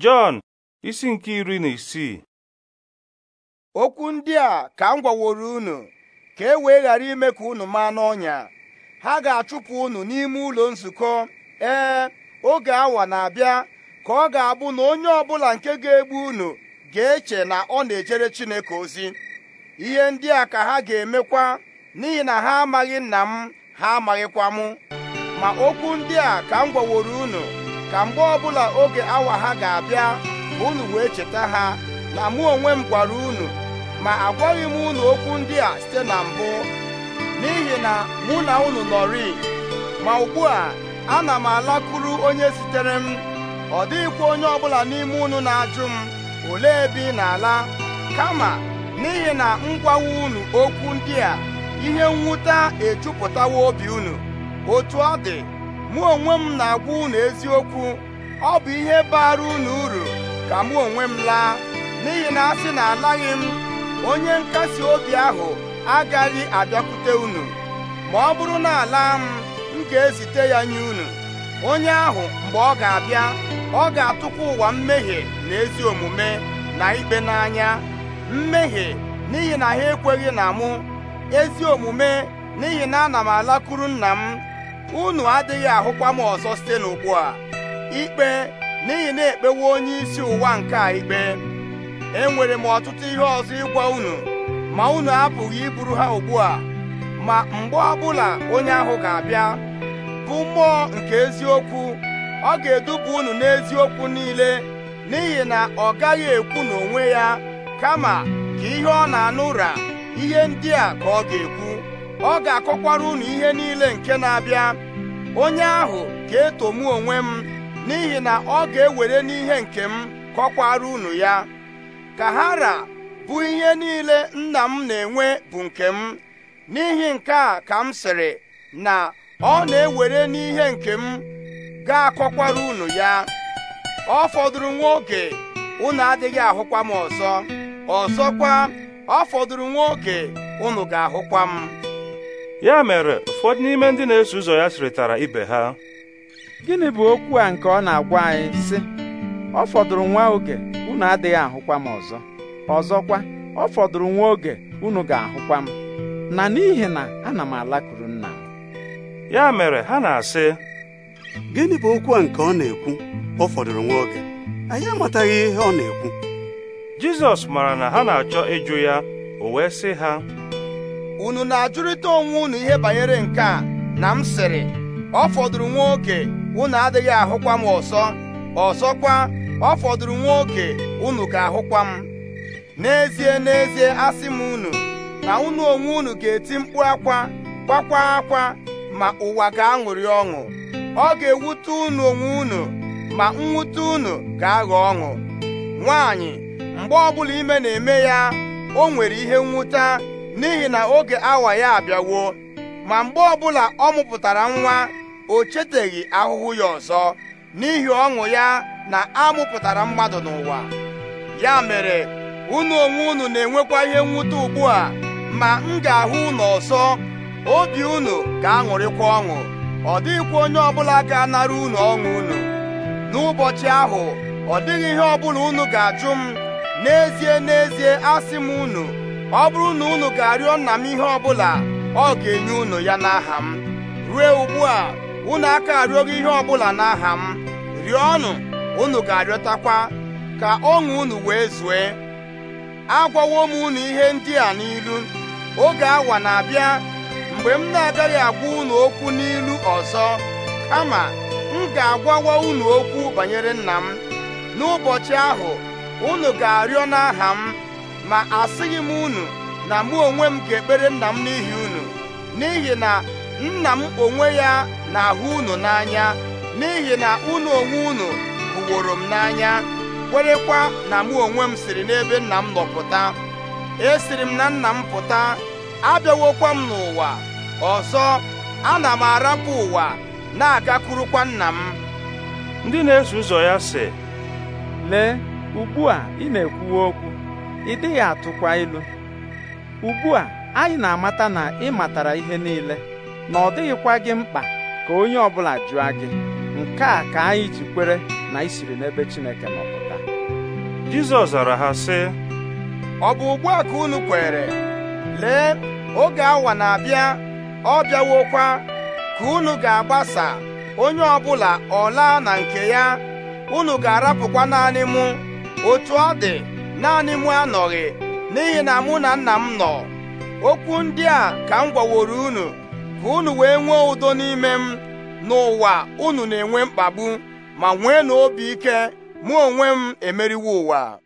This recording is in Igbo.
Jọn isi nke iri na isii okwu ndị a ka m gwaworo unu ka e wee ghara ime ka unu maa n'ọnya ha ga-achụpụ unu n'ime ụlọ nzukọ ee oge awa na-abịa ka ọ ga-abụ na onye ọbụla nke ga-egbu unu ga-eche na ọ na-ejere Chineke ozi ihe ndị a ka ha ga-emekwa n'ihi na ha amaghị nna m ha amaghịkwa mụ ma okwu ndị a ka m gwaworo unu ka mgbe ọbụla oge awa ha ga-abịa ma unu wee cheta ha na mụ onwe m gwara unu ma agwaghị m unu okwu ndị a site na mbụ n'ihi na mụ na unu nọrị ma ugbu a ana m alakụrụ onye sitere m ọ dịghịkwa onye ọbụla n'ime unu na-ajụ m olee ebe ị na-ala kama n'ihi na m unu okwu ndị a ihe mwute ejupụtawa obi unu otu ọ dị mụ onwe m na-agwa unu eziokwu ọ bụ ihe bara unu uru ka mụ onwe m laa n'ihi na asị na alaghị m onye nkasi obi ahụ agaghị abịakwute unu ma ọ bụrụ na ala m m ga-ezite ya nye unu onye ahụ mgbe ọ ga-abịa ọ ga-atụkwa ụwa mmehie na ezi omume na ikpe n'anya mmehie n'ihi na ha ekweghị na mụ ezi omume n'ihi na ana m alakụrụ nna m unu adịghị ahụkwa m ọzọ site n'ugbu a ikpe n'ihi na ekpewo onye isi ụwa nke a ikpe enwere m ọtụtụ ihe ọzọ ịgwa unu ma unu apụghị iburu ha ugbu a ma mgbe ọbụla onye ahụ ga-abịa bụ mmụọ nke eziokwu ọ ga-eduba unu n'eziokwu niile n'ihi na ọ gaghị ekwu n'onwe ya kama ka ihe ọ na-anụ ụra ihe ndị a ka ọ ga-ekwu ọ ga-akọkwara unu ihe niile nke na-abịa onye ahụ ga-etomu eto onwe m n'ihi na ọ ga-ewere n'ihe nke m kọkwara unu ya ka hara bụ ihe niile nna m na-enwe bụ nke m n'ihi nke a ka m sịrị na ọ na-ewere n'ihe nke m ga-akọkwara unu ya ọ fọdụrụ nwa oge unu adịghị ahụkwa m ọzọ ọzọkwa ọ fọdụrụ nwa oge unu ga-ahụkwa m ya mere ụfọdụ n'ime ndị na-eso ụzọ ya sịrịtara ibe ha gịnị bụ okwu a nke ọ na-agwa anyị sị ọ fọdụrụ nwa oge unu adịghị ahụkwa m ọzọ ọzọkwa ọ fọdụrụ nwa oge unu ga-ahụkwa m na n'ihi na ana m alakụrụ nna m ya mere ha na-asị gịnị bụ okwu a nke ọ na-ekwu ọ fọdụrụ nwa oge anyị amataghị ihe ọ na-ekwu Jizọs mara na ha na-achọ ịjụ ya o wee sị ha unu na-ajụrịta onwe unu ihe banyere nke a na m sịrị ọ fọdụrụ nwa oke unu adịghị ahụkwa m ọsọ ọsọkwa, ọ fọdụrụ nwa oke unu ga-ahụkwa m n'ezie n'ezie asị m unu na unu onwe unu ga-eti mkpu akwa kwakwa akwa ma ụwa ga-aṅụrị ọṅụ ọ ga-ewute unu onwe unu ma nwute unu ga-aghọ ọṅụ nwaanyị mgbe ọbụla ime na-eme ya o nwere ihe nwụta. n'ihi na oge awa ya abịawo ma mgbe ọbụla ọ mụpụtara nwa o cheteghị ahụhụ ya ọzọ n'ihi ọṅụ ya na a mụpụtara mmadụ n'ụwa ya mere unu onwe unu na-enwekwa ihe mwute ugbu a ma m ga-ahụ unu ọzọ obi unu ga-aṅụrịkwa ọṅụ ọ dịghịkwa onye ọbụla ga-anara unu ọṅụ unu n'ụbọchị ahụ ọ dịghị ihe ọbụla unu ga-ajụ m n'ezie n'ezie asị m unu ọ bụrụ na unu ga-arịọ nna m ihe ọbụla ọ ga-enye unu ya n'aha m rue ugbu a unu aka arịọghị ihe ọbụla n'aha m ọnụ, unu ga-arịọtakwa ka ọṅụ unu wee zue agwawo m unu ihe ndị a n'ilu oge awa na-abịa mgbe m na-agaghị agwa unu okwu n'ilu ọzọ kama m ga-agwawa unu okwu banyere nna m n'ụbọchị ahụ unu ga-arịọ n'aha m ma asịghị m unu na mụ onwe m ga-ekpere nna m n'ihi unu n'ihi na nna m onwe ya na-ahụ unu n'anya n'ihi na unu onwe unu bụworo m n'anya kwerekwa na mụ onwe m siri n'ebe nna m nọ pụta esiri m na nna m pụta abịawokwa m n'ụwa ọzọ ana m arapụ ụwa na-agakwurukwa nna m ndị na-eso ụzọ ya sị lee ugbu a ị na ekwuwe okwu ị dịghị atụkwa ilu ugbu a anyị na-amata na ị matara ihe niile na ọ dịghịkwa gị mkpa ka onye ọbụla jụọ gị nke a ka anyị ji kwere na isiri n'ebe Chineke nọpụta Jizọs zara ha sị ọ bụ ugbu a ka unu kwere lee oge awa na-abịa ọ bịawokwa ka unu ga-agbasa onye ọbụla ọ laa na nke ya unu ga-arapụkwa naanị mụ otu ọ dị naanị mụ anọghị n'ihi na mụ na nna m nọ okwu ndị a ka m gwaworo unu ka unu wee nwee ụdọ n'ime m n'ụwa unu na-enwe mkpagbu ma nwee na obi ike mụ onwe m emeriwo ụwa